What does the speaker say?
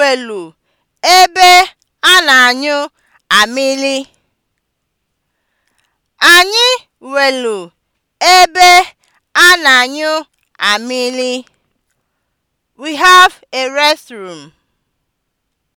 welu ebe a na-anyụ amịlị. Anyị welu ebe a na-anyụ amịlị. We have a restroom.